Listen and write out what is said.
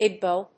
ebal